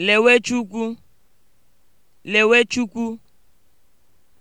Lewe Chukwu, Lewe Chukwu.